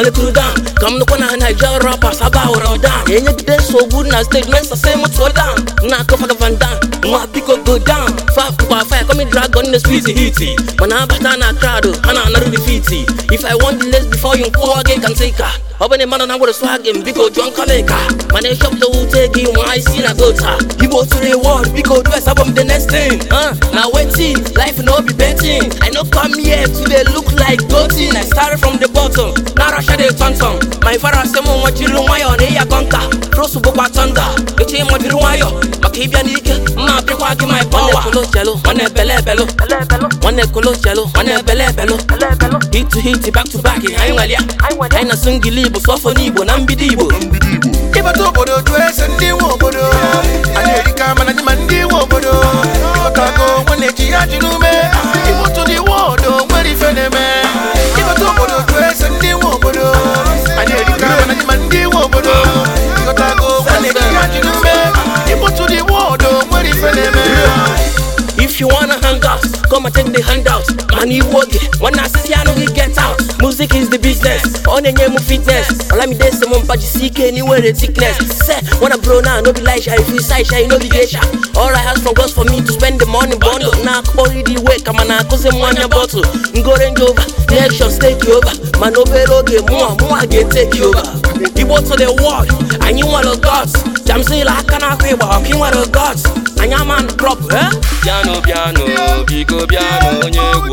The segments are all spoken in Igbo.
Molekuru down ka m nụkwa na Naija rappers aba hụrụ down enyegide nsogbu na stage mensa se m tụọ down na-akọ faga van down nwa biko go down fa kwa fire kọmi dragon na sweet hiti mana abata na crowd ana na-anarụ defiti if I want the less before you nkụwa gị ka m take her ọ bụ na mmadụ na nwere swag m biko jụọ nkọlịka mana ịchọpụta wute gị i isi na gota igbo tụrụ iwọd biko dress abụ m the next thing na wetin life no be betting i no come here to dey look like gotin i start from the bottom tọntọn ma ifara asị m jiri nwayọọ na ịya kọnta rosu bụkwa tọnda eche ịma jiri maka ịbịa n'ike mma pịkwa gị ma ịpọwa nwanne ebele ebelu nwanne nwanne ebele ebelu hit to hit back to back anyị anyị na singili igbo sọfọ n'igbo na mbido igbo ịbata obodo jụ ndị na-erika If you wanna hang out, come and take the handout. Man, When I see you, get out. Music is the business. On the name of fitness. All I'm there, someone but you see anywhere the thickness. Say, when I bro now, no be like If you say you no be geisha. All I ask from God's for me to spend the money bundle. Now, already wake, I'm an accusing money bottle. Go range over, election take you over. Man, over, okay, more, more, I get take you over. to the world, and you want a gods. jamsila aka n'akwa ịgba ọkụ ị nwere gods anya man prop eh piano piano biko piano onye egwu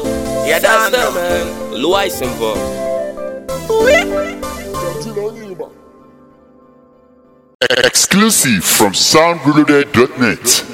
yada that's them, man. Luais involved. Exclusive from soundreloaded.net.